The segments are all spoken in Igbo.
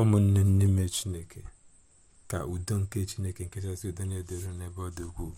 ụmụnne n'ime chineke ka udo nke chineke nke kachasị udo na-edere n'ebe ọ dị ukwuu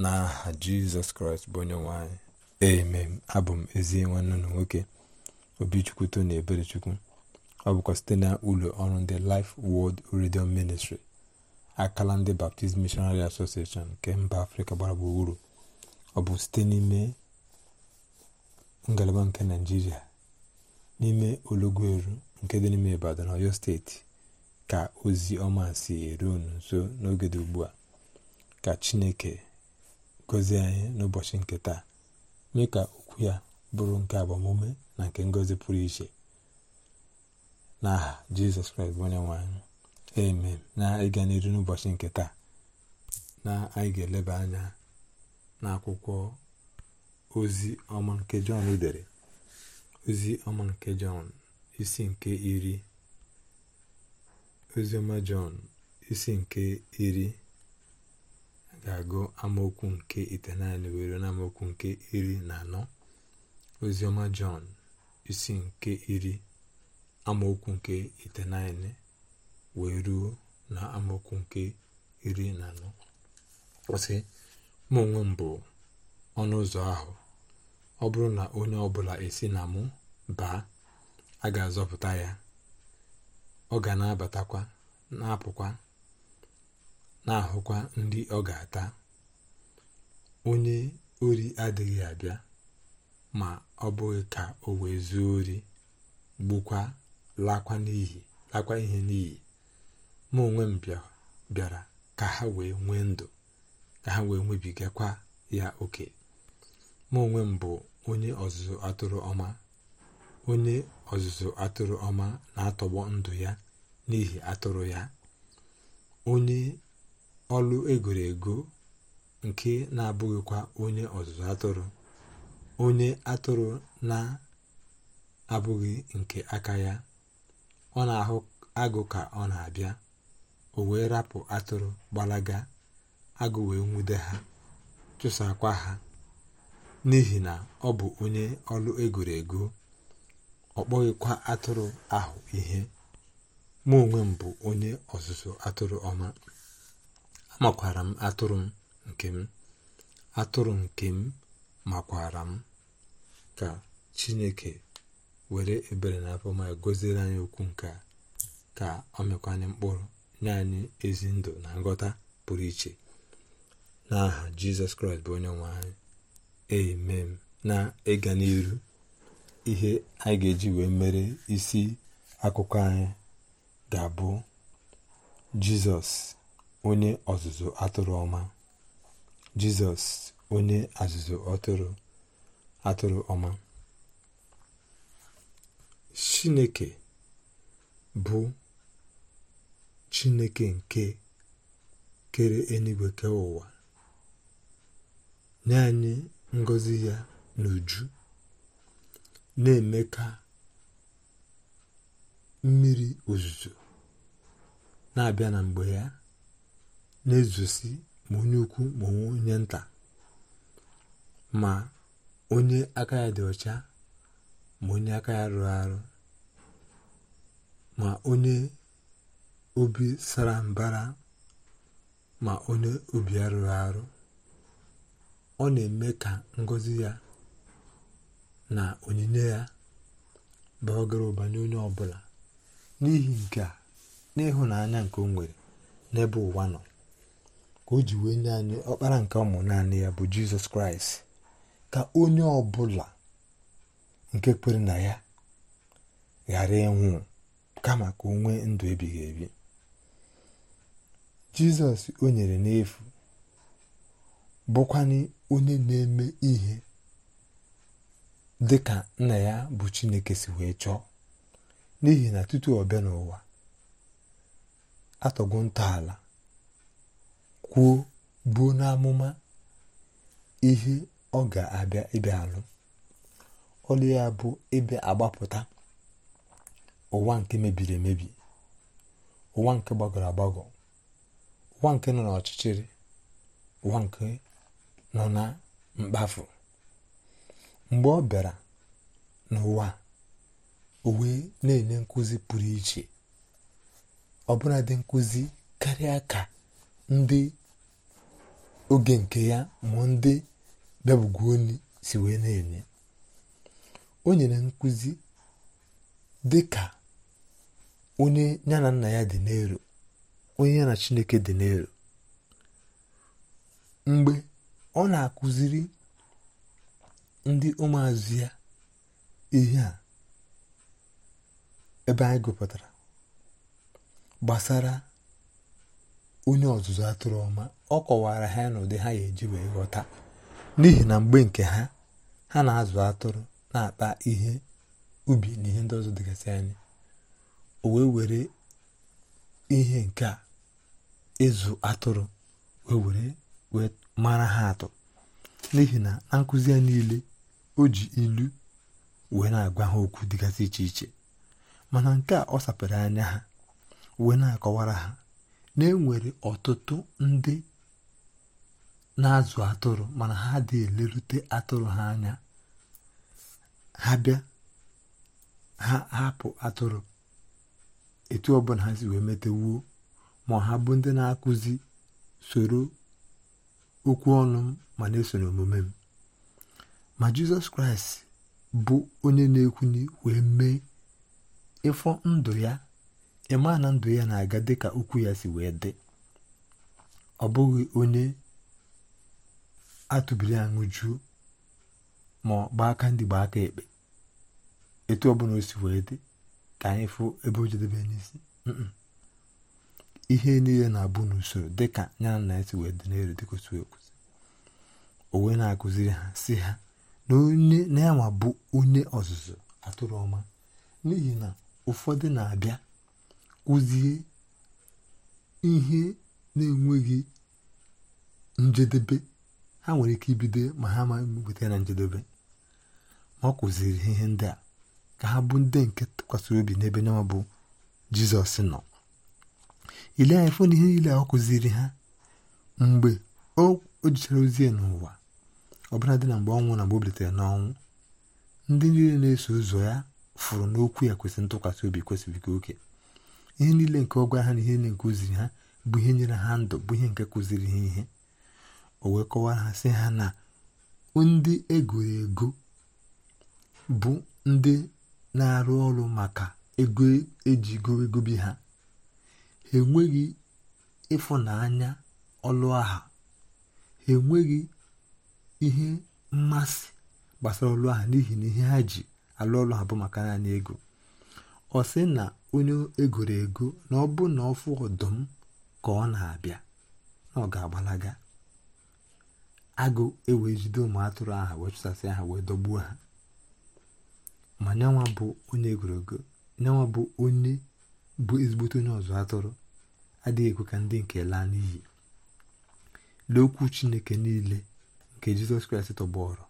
n'aha jizọs kraịst bụ onye nwanyị emem abụ m ezi nwanne na nwoke obichukwu tony eberechukwu ọ bụkwa site na ụlọ ọrụ ndị Life wọld redio Ministry akala ndị Baptist Missionary Association nke mba afrịka gbara gburugburu ọ bụ site n'ime ngalaba nke naijiria n'ime olugweru nke dị n'ime ibadan oyo steeti ka ozi ọma si eru unu nso n'oge dị ugbu a ka chineke gozie anyị n'ụbọchị nke taa mee ka okwu ya bụrụ nke agbamume na nke ngozi pụrụ iche n'aha jizọs kraịst bụ onye nwe anyị amen na ịga n'iru n'ụbọchị nke taa na anyị ga-eleba anya n'akwụkwọ ozi ọma nke jọn dere ozi ọma nke jọn isi nke iri oziọma jọn isi nke iri ga-agụ amaokwu nke itenaanị were na amaokwu nke iri na anọ oziọma jọn isi nke iri amaokwu nke itenaanị wee ruo na amaokwu nke iri na anọ kwụsị mụ onwe m bụ ọnụ ụzọ ahụ ọ bụrụ na onye ọbụla esi na mụ baa a ga-azọpụta ya ọ ga na-abatakwa na-apụkwa na-ahụkwa ndị ọ ga-ata onye ori adịghị abịa ma ọ bụghị ka o wee zuo ori gbukwa lakwa n'ihi lakwa ihe n'iyi ma onwe m bịara ka ha wee nwee ndụ ka ha wee nwebigakwa ya oke ma m bụ onye ọzụzụ atụrụ ọma onye ọzụzụ atụrụ ọma na-atọgbọ ndụ ya n'ihi atụrụ ya onye ọlụ egoro nke na-abụghịkwa onye ọzụzụ atụrụ onye atụrụ na-abụghị nke aka ya ọ na-ahụ agụ ka ọ na-abịa o wee rapụ atụrụ gbalaga agụ wee nwude ha chụsakwa ha n'ihi na ọ bụ onye ọlụ egoro ego ọ kpọghịkwa atụrụ ahụ ihe mụ onwe m bụ onye ọzụzụ atụrụ ọma amakwara m atụrụ m nke m atụrụ nke m makwara m ka chineke were ebere na afọma gọziere anyị okwu nke ka ọ mekwanye mkpụrụ nye anyị ezi ndụ na nghọta pụrụ iche n'aha jizọs kraịst bụ onye nwe anyị Amen, na ịga n'ihu ihe anyị ga-eji wee mere isi akụkọ anyị ga-abụ jizọs onye ọzụzụ atụrụ ọma jizọs onye ọzụzụ atụrụ atụrụ ọma chineke bụ chineke nke kere eluigwe kee ụwa nye anyị ngozi ya n'uju na-eme ka mmiri ozuzo na-abịa na mgbe ya na-ezosi ma onye ukwu ma onye nta ma onye aka ya dị ọcha ma onye aka ya rụrụ arụ ma onye obi sara mbara ma onye obi arụrụ arụ ọ na-eme ka ngọzi ya na onyinye ya baa gara ụba n'onye ọbụla n'ihi nke a n'ịhụnanya nke o nwere n'ebe ụwa nọ ka o ji wee nye anyị ọkpara nke ụmụ naanị ya bụ jizọs kraịst ka onye ọbụla nke kwere na ya ghara ịnwụ kama ka onwe ndụ ebighị ebi jizọs o nyere n'efu bukwani onye na-eme ihe dị nna ya bụ chineke si wee chọọ n'ihi na tutu ọ n'ụwa atọgo ntọala kwuo buo n'amụma ihe ọ ga-abịa ịbịa alụ ọlụ ya bụ ịbịa agbapụta ụwa nke mebiri emebi ụwa nke gbagọrọ agbagọ ụwa nke nọ n'ọchịchịrị ụwa nke nọ na mkpafu mgbe ọ bịara n'ụwa o na-enye nkụzi pụrụ iche ọbụla dị nkụzi karịa ka ndị oge nke ya ma ndị onye si wee na-enye o nyere nkụzi dị ka onye ya na nna ya dị n'elu onye ya na chineke dị n'elu mgbe ọ na-akụziri ndị ụmụazụ ya ihe a ebe anyị gụpụtara gbasara onye ọzụzụ atụrụ ọma ọ kọwara ha n'ụdị ha ga-eji wee ghọta n'ihi na mgbe nke ha ha na-azụ atụrụ na-akpa ihe ubi na ihe ndị ọzọ dịgasị anya o wee were ihe nke a ịzụ atụrụ wee were wee mara ha atụ n'ihi na na a niile o ji ilu wee na-agwa ha okwu dịgasị iche iche mana nke a ọ sapere anya ha wee na-akọwara ha na enwere ọtụtụ ndị na-azụ atụrụ mana ha dị elerute atụrụ ha anya ha bịa ha hapụ atụrụ etu ọbụla ha si wee metewuo ma ha bụ ndị na-akụzi soro okwu ọnụ m ma na eso n'omume m ma jizọs kraịst bụ onye na-ekwuni wee mee ịfọ ndụ ya ịma na ndụ ya na-aga dịka okwu ya si wee dị ọ bụghị onye atụbiri aṅụ jụụ ma ọ gbaa aka ndị gbaa aka ekpe etu ọbụla o si wee dị ka anyị fụ ebe o jedebe n'isi ihe niile na-abụ n'usoro dịka ya na esi wee dị n'elu dịka otu o wee na-akụziri ha si ha na onye na bụ onye ọzụzụ atụrụ ọma n'ihi na ụfọdụ na-abịa kụzie ihe na-enweghị njedebe ha nwere ike ibido ma ha ma weta na njedebe ma ọ kụziri ihe ndị a ka ha bụ ndị nke tụkwasịrị obi n'ebe nyanwa bụ jizọs nọ ile anya fụ na ihe niile ọ kụziri ha mgbe o jichara ozi n'ụwa ọbụla dị na mgbe ọnwụ na mgbe o bilitere n'ọnwụ ndị niile na-eso ụzọ ya fụrụ n'okwu ya kwesịrị ntụkwasị obi kwesịrị kwesịrịka oke ihe niile nke ọ gwara ha na ihe niile nke kụziri ha bụ ihe nyere ha ndụ bụ ihe nke kụziri ha ihe o wee kọwara ha sị ha na ndị egoro ego bụ ndị na-arụ ọrụ maka ego ejigo bi ha enweghị ịfụnanya ọlụ aha ha enweghị ihe mmasị gbasara ọlụ aha n'ihi na ihe ha ji alụ ọlụ ha bụ maka naanị ego ọ sị na onye egoro ego na ọ bụ na ọfụ ọdụm ka ọ na-abịa na ọ ga-agbalaga agụ ewee jide ụmụ atụrụ aha wee chụsasị aha wee dọgbuo ha ma nyanwa bụ onye egoro ego nyanwa bụ onye bụ ezigbote onye ọzụ atụrụ adịghị ekwe ka ndị nke laa n'iyi lee chineke niile nke jizọs kraịst tọgbọrọ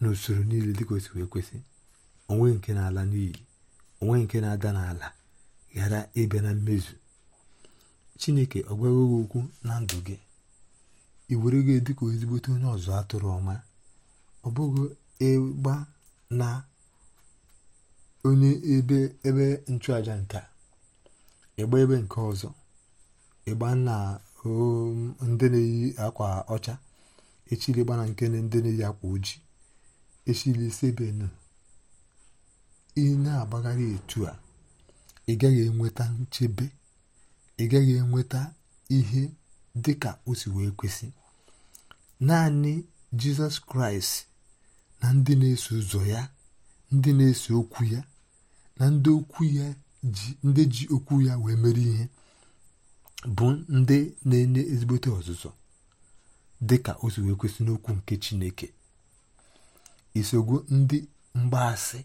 n'usoro niile dịka osi wee kwesị onwe nke na-ala n'iyi onwe nke na-ada n'ala ghara ịbịa na mmezu chineke ọ gwaghị okwu na ndụ gị ị were gị dịka ezigbote onye ọzọ atụrụ ọma ọ bụghị ịgba na onye ebe nchụaja nke ịgba ebe nke ọzọ um, ịgba na ndị na-eyi akwa ọcha echili gbana nke ndị na-eyi akwa ojii echili sebenu ị na-agbagharị etu a ị gaghị enweta nchebe ị gaghị enweta ihe dị ka o si wee kwesị naanị jizọs kraịst na ndị na-eso ụzọ ya ndị na-eso okwu ya na ndị okwu ya ndị ji okwu ya wee mere ihe bụ ndị na-enye ezigbote ọzụzụ dị ka o si wee kwesị n'okwu nke Chineke isogbu ndị mgbaasị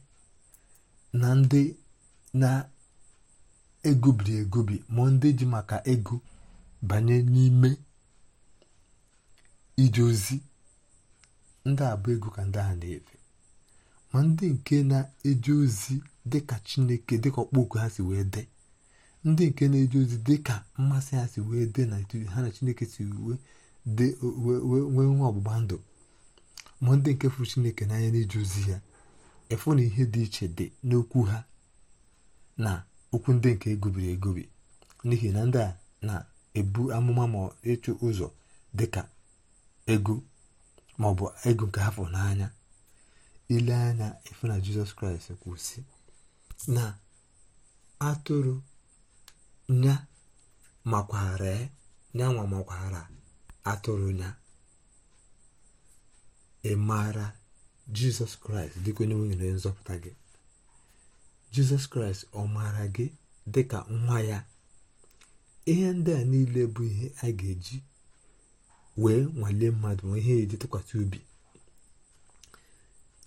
na ndị na-egobiri egobi ma ndị ji maka ego banye n'ime ije ozi ndị abụ ego ka ndị ahụ na-efe ma ndị nke na-eje ozi dịka chineke dịka ọkpọoku ha si wee dee ndị nke na-eje ozi dịka mmasị ha si wee dee na ha na chineke si wee nwee nwa ọgbụgba ndụ ma ndị nke fụrụ chineke n'anya na-eje ozi ya efu na ihe dị iche dị n'okwu ha na okwu ndị nke egobiri egobi n'ihi na ndị a na-ebu amụma ma ịchụ ụzọ dịka ego maọbụ ego nke ha fụrụ n'anya ile anya efu na jizọs kraịst kwụsị na atụrụ nya makwara nyanwa makwara atụrụ nya ị maara jizọs kraịst dịka onye nwere nzọpụta gị jizọs kraịst ọ maara gị dịka nwa ya ihe ndị a niile bụ ihe a ga-eji wee nwalee mmadụ ma ihe eji tụkwasị obi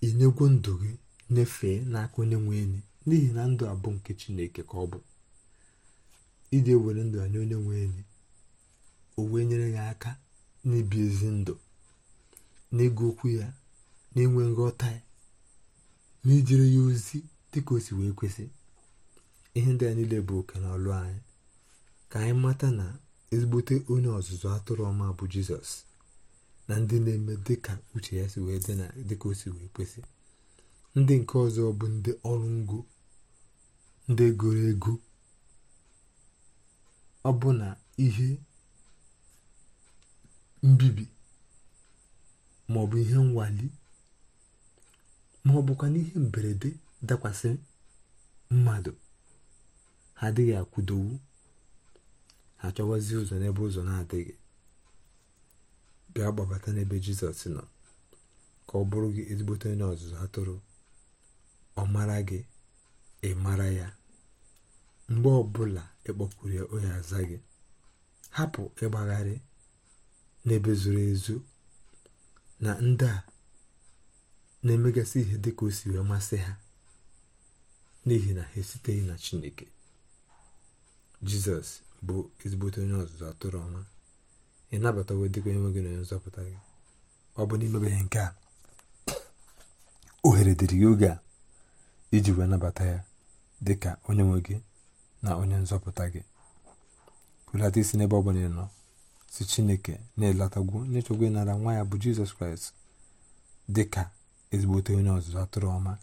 inyegwu ndụ gị nyefee n'aka onye nwe enyi n'ihi na ndụ abụ nke chineke ka ọ bụ iji were ndụ anyị onye nwe enyi o wee nyere ya aka n'ibi ezi ndụ n'ịgụ okwu ya n'inwe nghọta ya na ijere ya ozi dịka o si wee kwesị ihe ndị a niile bụ oke na ọlụ anyị ka anyị mata na ezigbote onye ọzụzụ atụrụ ọma bụ jizọs na ndị na-eme dịka uche ya si wee dị na dịka o si wee kwesị ndị nke ọzọ bụ ndị ọrụ ngo ndị goro ego ọ bụ na ihe mbibi ma ọ bụ ihe nwali ma ọ bụkwa n'ihe mberede dakwasị mmadụ ha adịghị akwụdowu ha chọwazi ụzọ n'ebe ụzọ na-adịghị bịa gbabata n'ebe jizọs nọ ka ọ bụrụ gị ezigbote onye ọzụzụ ha ọ mara gị ị mara ya mgbe ọbụla ịkpọkwuru e ya onye aza gị hapụ ịgbagharị n'ebe zuru ezu na ndị a na-emegasị ihe dị ka o si wee masị ha n'ihi na ha esiteghị na chineke jizọs bụ ezigbote onye ọzụzụ atụrụ ọma ị nabatawo dịka onye gị na onye nzọpụta gị ọ bụ n'imebeghị nke a ohere dịrị gị a iji wee nabata ya dị ka onye nwe gị na onye nzọpụta gị hulata isi n'ebe ọ bụla nọ si chineke na-elatagwu n'ịchọgwa ịnara nwa ya bụ jizọs kraịst dị ka ezigbote onye ọzụzụ atụrụ ọma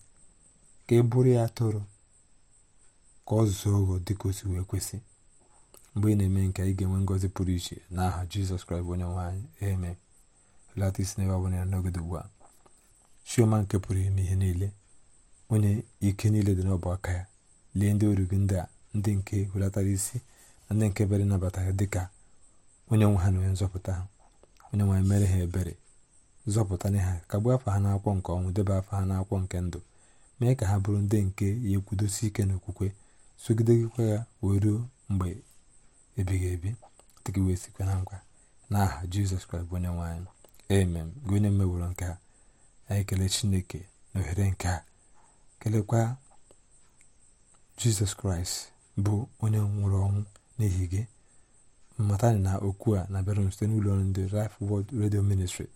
ka e bụrụ ya atụrụ ka ọ zụọ ụgwọ dị ka o si wee kwesị mgbe ị na-eme nke ị ga-enwe ngọzi pụrụ iche n'aha jizọs kraịst bụ onye nwaanyị eme hulata isi n'ebe ọ bụla n'oge ugbu a chioma nke pụrụ ime ihe niile onye ike niile dị n'ọbụ aka ya lee ndị oru ndị a ndị nke welatara isi na ndị nke bere nabata ya dịka onye nwe ha na onye nzọpụta ha onye nwe mere ha ebere zọpụtana ha kagbuo afọ ha n'akwụkwọ nke ọnwụ debe afọ ha n'akwụkwọ nke ndụ mee ka ha bụrụ ndị nke ya ekwudosi ike n'okwukwe sogidegịkwa ya wee ruo mgbe ebighị ebi dịka wee sikwa na nkwa n'aha jizọs kraịst bụ onye nwaanyị emem amen gị onye mmeworo nke a anyị kelee chineke na ohere nke a kelekwa jizọs kraịst bụ onye nwụrụ ọnwụ n'ihi gị mmatani na okwu a na-abịara m site n'ụlọ ọrụ ndị Life World Radio Ministry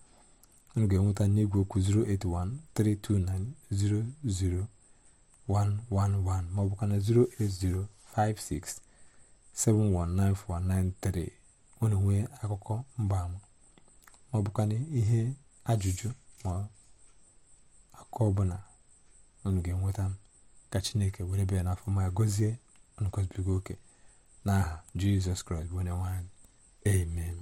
m ga-enweta n'igwe okwu 08132900111 bụkwa na 08056719493 onye nwee akụkọ mgbaama maọbụ kana ihe ajụjụ ma akụkọ ọbụla unu ga-enweta m ka chineke were bịa n'afọ ma gọzie nkọzibigo oke n'aha jizọs kraịst bụ onye nwanyị amen